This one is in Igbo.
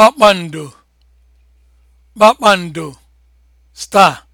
kpakpando kpakpando star